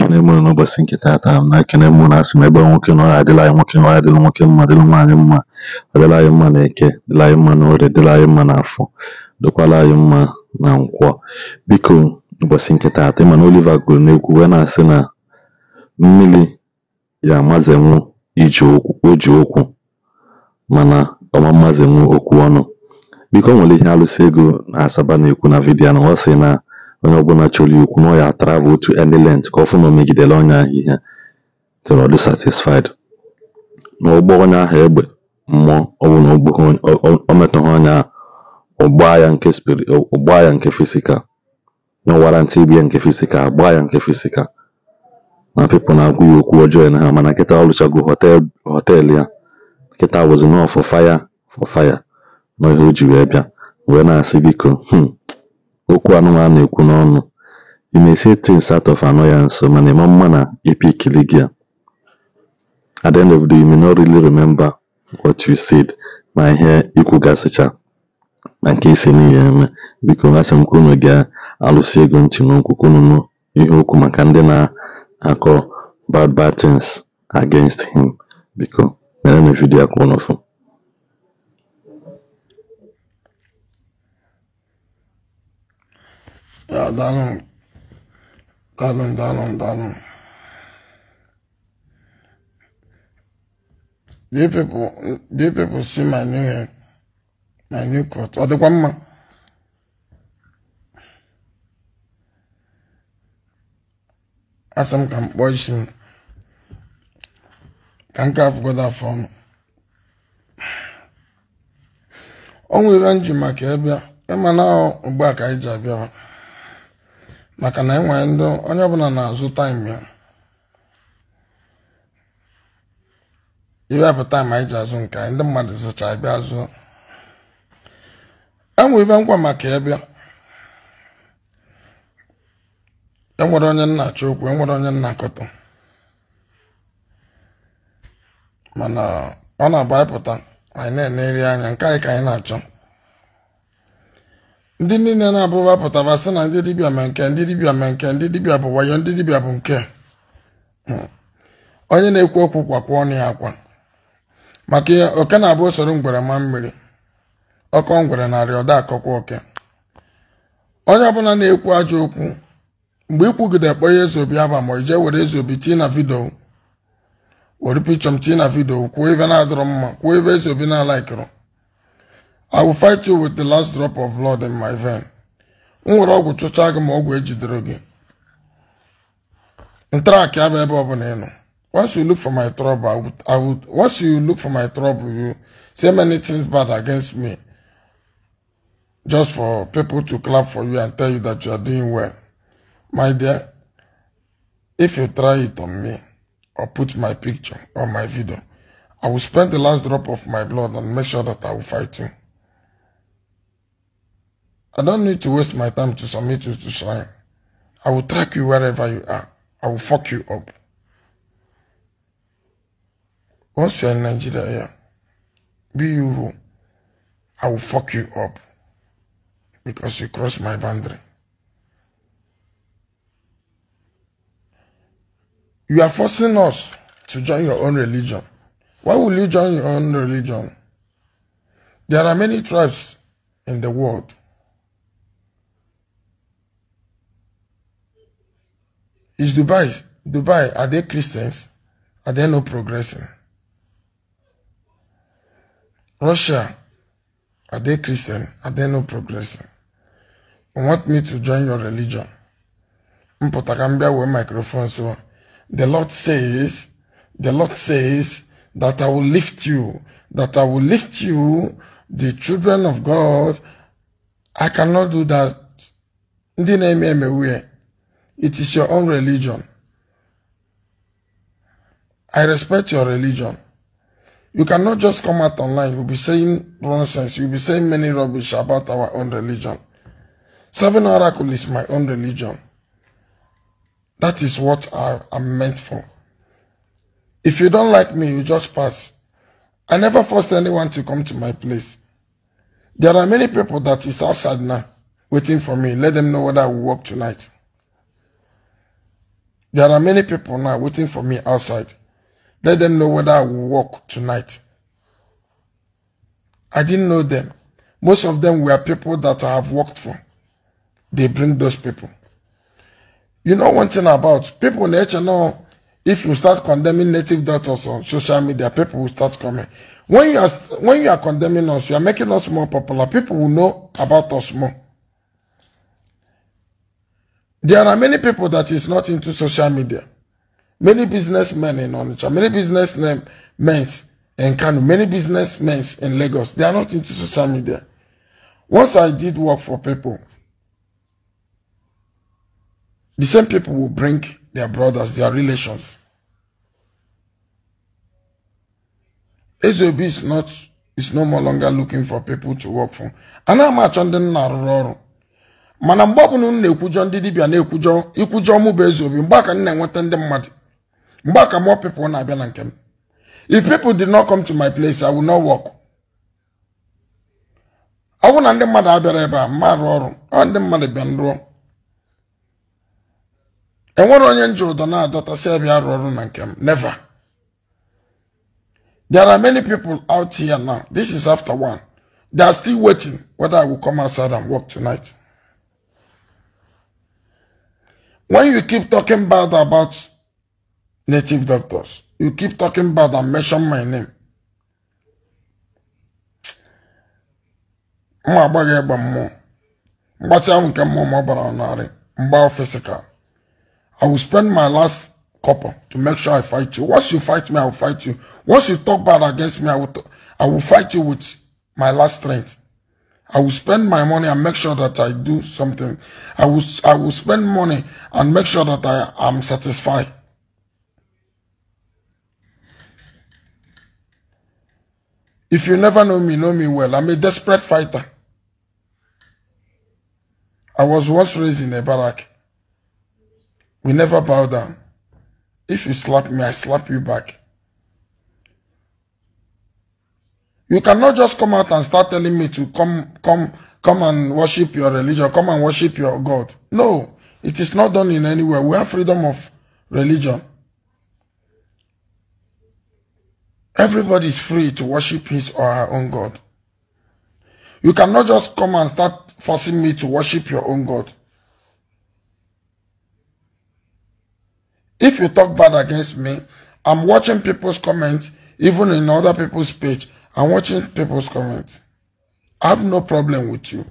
ekene mụ n'ụbọchị nke tata na-ekene mụ na asị m ebe nwoke nọ adịla anyị nwoke nọ adịla nwoke mma dịla nwaanyị mma adịla anyị mma na eke dịla anyị mma n'orie dịla anyị mma na afọ dokwala anyị mma na nkwọ biko ụbọchị nke tata ịma na Oliva gụrụ n'egwu wee na-asị na mmiri ya amazenwu iji okwu mana ọma mmazenwu okwu ọnụ biko nwere ihe alụsị ego na asaba na-ekwu na vidiyo na ọsị na onye ọbụla chọrọ ikwu na ọ travel to any length ka ọ na o megidere ọnya ahịhịa ihe till dị satisfied na ụgbọ onye ahụ egbe mmụọ ọbụla o metọghị onye ahụ ụgbaa ya nke ya nke fisikal na warantị ibia nke fisika agbaa ya nke fisikal na pipụl na-agwa ya okwu ọjọọ na ha mana nkịta ọ rụchago ya nkịta wụzi nọọ fọ fire fọ fire na ihe o ji wee bịa wee na-asị biko hmm, okwu anụnwa na-ekwu n'ọnụ you may say things ya nso mana ịma mma na ipikili gị at the end of the day you may not really remember what you said ma ihe ikwugasịcha gasịcha na nke isi n'ihe eme biko acha m ka unu ga-alụsi ego ntị n'okwu ihe okwu maka ndị na-akọ bad bad things against him biko mere na vidiyo akwụ n'ofu Ya dalın. Dalın dalın dalın. Do you people do people see my new hair? My new cut. Or the one As I'm can Can't have got that phone. nwere maka ebe a, ịma na ugbu a ka anyị ji abịa maka na enwere ndị onye ọbụla na-azụ taịm ya iwepụ taịm anyị ji azụ nke anyị ndị mmadụ zụcha bịa azụ enwere ibe ngwa maka ebe enwere onye nnachi okwu enwere onye nnakọta mana ọ na-abụ anyị pụta anyị na eri anya nke anyị ka anyị na-achọ ndị niile na-abụba pụtara sị na ndị dibịa ma nke ndị dibịa ma nke ndị dibịa bụ wayo ndị dibịa bụ nke hmm. onye na-ekwu okwu kwakwa ọnụ ya akwa maka ihe oke na-abụ usoro ngwere ma mmiri ọkọ ngwere narị ọda akọkwa oke onye ọbụla na-ekwu ajọ okwu mgbe ikwugide kpọ ihe eze obi aba ma ije were eze obi tii na vidio were pichọm tii na vidio kwuo ibe na-adọrọ mma kwuo ebe eze obi na-alaikịrị I will fight you with the last drop of blood in my vein. nwere ọgwụ chụchaa gị ma ọgwụ ejidere gị. ebe ọ bụla Once you look for my trouble, I would, I would, once you look for my trouble, you say many things bad against me. Just for people to clap for you and tell you that you are doing well. My dear, if you try it on me, or put my picture or my video, I will spend the last drop of my blood and make sure that I will fight you. I don't need to waste my time to submit you to slime. I will track you wherever you are. I will fuck you up. Once you're in Nigeria, yeah, be you who, I will fuck you up because you cross my boundary. You are forcing us to join your own religion. Why will you join your own religion? There are many tribes in the world. Is Dubai, Dubai, are they Christians? Are they not progressing? Russia, are they Christian? Are they not progressing? You want me to join your religion? Mpotagambia with microphone. So the Lord says, the Lord says that I will lift you, that I will lift you, the children of God. I cannot do that. Ndị na-eme emewe it is your own religion. I respect your religion. You cannot just come out online. You'll be saying nonsense. You'll be saying many rubbish about our own religion. Seven Oracle is my own religion. That is what I am meant for. If you don't like me, you just pass. I never forced anyone to come to my place. There are many people that is outside now waiting for me. Let them know whether I will work tonight. There are many people now waiting for me outside. Let them know whether I will walk tonight. I didn't know them. Most of them were people that I have worked for. They bring those people. You know one thing about people in HNO, if you start condemning native daughters on social media, people will start coming. When you are when you are condemning us, you are making us more popular. People will know about us more. There are many people that is not into social media. Many businessmen in Onitsha, many businessmen in Kano, many businessmen in Lagos. They are not into social media. Once I did work for people, the same people will bring their brothers, their relations. SOB is not is no more longer looking for people to work for. And how much on the mana mgbe ọbụla unu na-ekwujọ ndị dibịa na-ekwujọ ikwujọ mụ bụ ezi obi mgbe aka m na-enweta ndị mmadụ mgbe aka mọ pipụl na-abịa na nke m if people did not come to my place I will not work ọ bụrụ na ndị mmadụ abịara ebe a mma arụ ọrụ ọ ndị mmadụ bịa nrụọ enwere onye nji ụdọ na-adọtasị adọta abịa arụ ọrụ na nke m never There are many people out here now. This is after one. They are still waiting whether I will come outside and work tonight. When you keep talking bad about native doctors, you keep talking bad and mention my name. Mma agbaghị egbe mmụọ. Mgbatị ahụ nke mmụọ m ọ bara physical. I will spend my last copper to make sure I fight you. Once you fight me, I will fight you. Once you talk bad against me, I will, I will fight you with my last strength. I will spend my money and make sure that I do something. I will, I will spend money and make sure that I am satisfied. If you never know me, know me well. I'm a desperate fighter. I was once raised in a barrack. We never bow down. If you slap me, I slap you back. You cannot just come out and start telling me to come, come, come and worship your religion, come and worship your God. No, it is not done in anywhere. We have freedom of religion. Everybody is free to worship his or her own God. You cannot just come and start forcing me to worship your own God. If you talk bad against me, I'm watching people's comments, even in other people's page. I'm watching people's comments. I have no problem with you.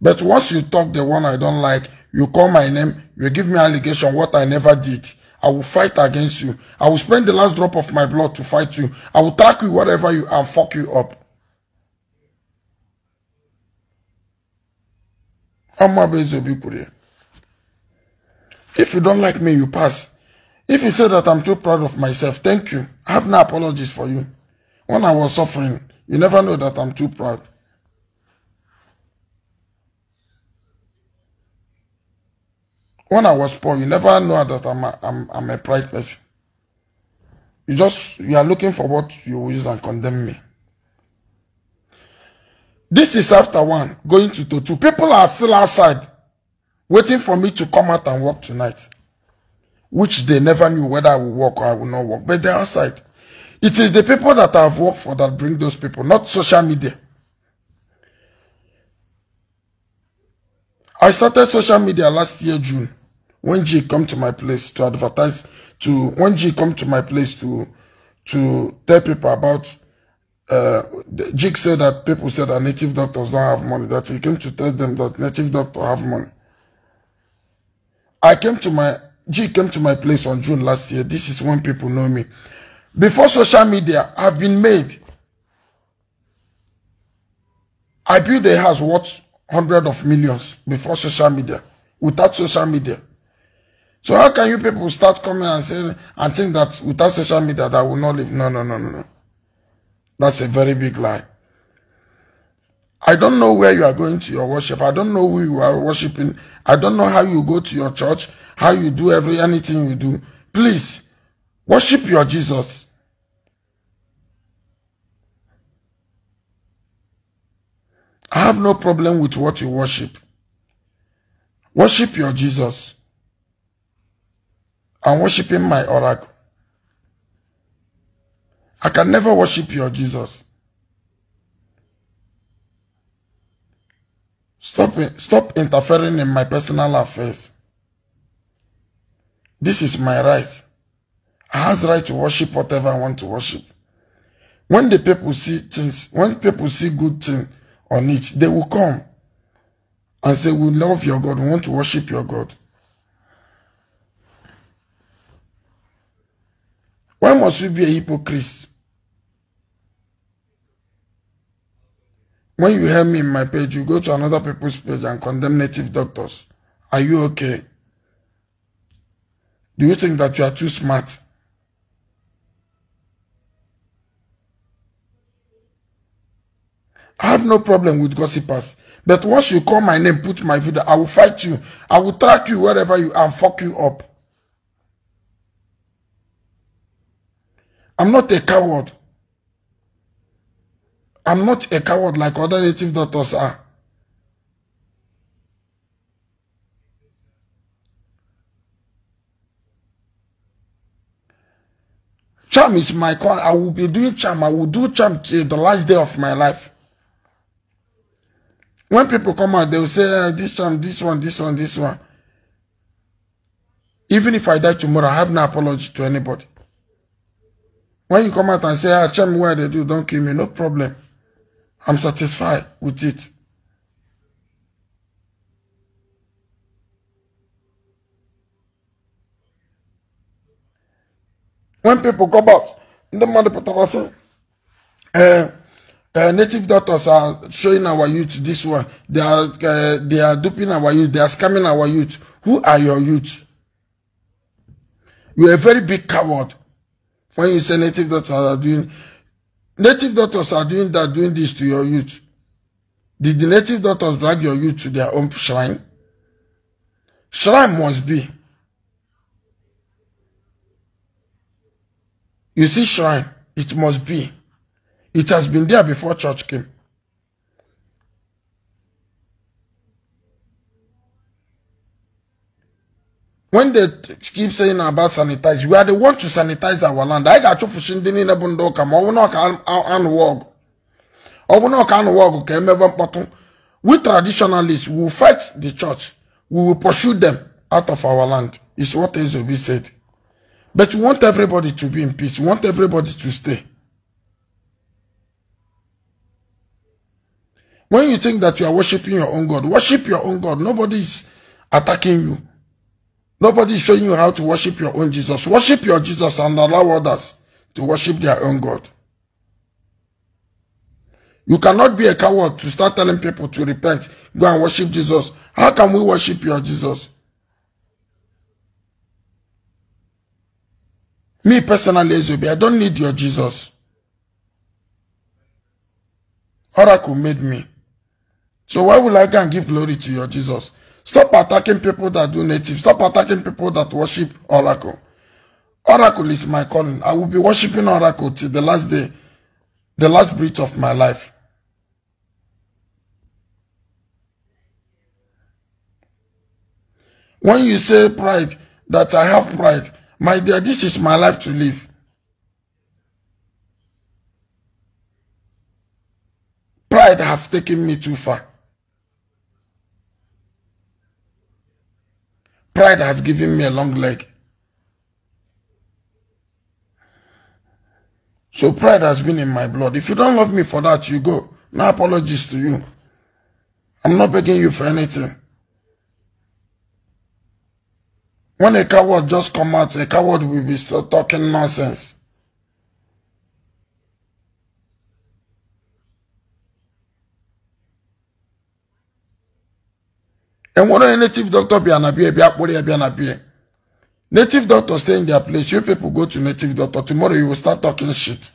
But once you talk the one I don't like, you call my name, you give me allegation what I never did. I will fight against you. I will spend the last drop of my blood to fight you. I will track you whatever you and fuck you up. If you don't like me, you pass. If you say that I'm too proud of myself, thank you. I have no apologies for you. When I was suffering, you never know that I'm too proud. When I was poor, you never know that I'm a, I'm, I'm a pride person. You just you are looking for what you use and condemn me. This is after one, going to two. People are still outside waiting for me to come out and walk tonight, which they never knew whether I will walk or I will not walk, but they're outside. It is the people that I've worked for that bring those people, not social media. I started social media last year, June, when G come to my place to advertise, to when G come to my place to to tell people about uh, Jig said that people said that native doctors don't have money, that he came to tell them that native doctors have money. I came to my, Jig came to my place on June last year. This is when people know me before social media have been made. I built a house worth hundred of millions before social media, without social media. So how can you people start coming and saying and think that without social media that will not live? No, no, no, no, no. That's a very big lie. I don't know where you are going to your worship. I don't know who you are worshiping. I don't know how you go to your church, how you do every anything you do. Please Worship your Jesus. I have no problem with what you worship. Worship your Jesus. I'm worshiping my oracle. I can never worship your Jesus. Stop, stop interfering in my personal affairs. This is my right has right to worship whatever I want to worship. When the people see things, when people see good thing on it, they will come and say, we love your God, we want to worship your God. Why must we be a hypocrite? When you hear me in my page, you go to another people's page and condemn native doctors. Are you okay? Do you think that you are too smart? I have no problem with gossipers. But once you call my name, put my video, I will fight you. I will track you wherever you are and fuck you up. I'm not a coward. I'm not a coward like other native doctors are. Charm is my con. I will be doing charm. I will do charm till the last day of my life. When people come out, they will say, uh, this one, this one, this one, this one. Even if I die tomorrow, I have no apology to anybody. When you come out and say, ah, tell me why they do, don't kill me, no problem. I'm satisfied with it. When people come out, the mother protocol say, uh, Uh, native doctors are showing our youth this one. They are uh, they are duping our youth. They are scamming our youth. Who are your youth? You are a very big coward when you say native doctors are doing. Native doctors are doing that, doing this to your youth. Did the native doctors drag your youth to their own shrine? Shrine must be. You see shrine, it must be. It has been there before church came. When they keep saying about sanitize, we are the ones to sanitize our land. I got you for shindini na bundoka. will not can anu I will oh, not can wog Okay, emebe mpotun. We traditionalists we will fight the church. We will pursue them out of our land. Is what be said. But we want everybody to be in peace. We want everybody to stay. When you think that you are worshiping your own God, worship your own God. Nobody is attacking you. Nobody is showing you how to worship your own Jesus. Worship your Jesus and allow others to worship their own God. You cannot be a coward to start telling people to repent, go and worship Jesus. How can we worship your Jesus? Me personally, Ezobi, I don't need your Jesus. Oracle made me. So why will I go and give glory to your Jesus? Stop attacking people that do native. Stop attacking people that worship Oracle. Oracle is my calling. I will be worshiping Oracle till the last day, the last breath of my life. When you say pride, that I have pride, my dear, this is my life to live. Pride have taken me too far. Pride has given me a long leg. So pride has been in my blood. If you don't love me for that, you go. No apologies to you. I'm not begging you for anything. When a coward just come out, a coward will be still talking nonsense. And ɛwɔn no native doctor be anabea ebi be an anabea native doctor stay in their place you people go to native doctor tomorrow you will start talking shit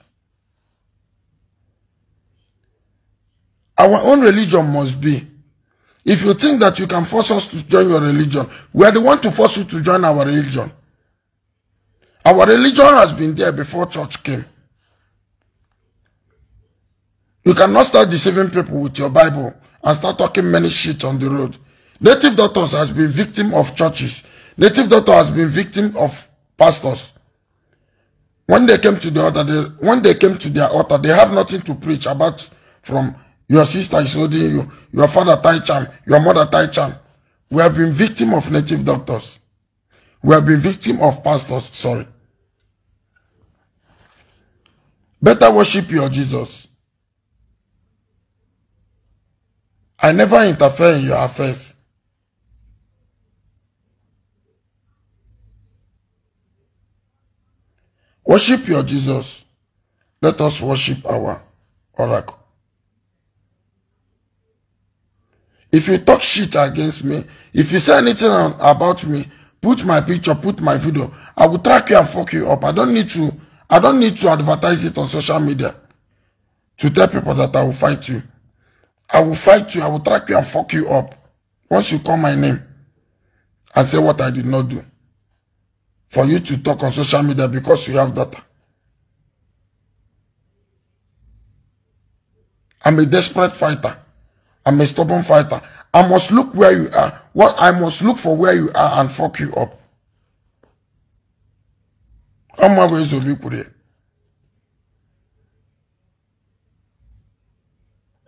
our own religion must be if you think that you can force us to join your religion we are the one to force you to join our religion our religion has been there before church came you cannot start deceiving people with your bible and start talking many shit on the road Native doctors has been victim of churches. Native doctor has been victim of pastors. When they came to the altar, they, when they came to their altar, they have nothing to preach about from your sister is holding you, your father Tai Cham, your mother Tai Cham. We have been victim of native doctors. We have been victim of pastors, sorry. Better worship your Jesus. I never interfere in your affairs. Worship your Jesus. Let us worship our oracle. If you talk shit against me, if you say anything about me, put my picture, put my video, I will track you and fuck you up. I don't need to I don't need to advertise it on social media to tell people that I will fight you. I will fight you, I will track you and fuck you up. Once you call my name and say what I did not do for you to talk on social media because you have data. I'm a desperate fighter. I'm a stubborn fighter. I must look where you are. What I must look for where you are and fuck you up. I'm always a liquid.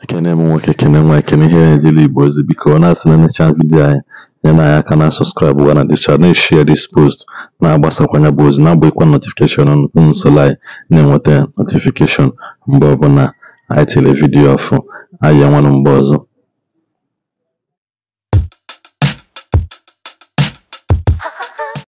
ekene m nwoke ekene nwa ekene ihe na-edili igbo boys because ọ not asị any chance with anyị nyena anyị aka na sọskraịbụ gwa na dis chad na-eshia dis post na-agbasakwanya bụ ozi na agba ikwa unu um, na-enweta notifikeshọn mgbe ọbụla anyị tiri vidiyo ọfụ anyị mgbe ọzọ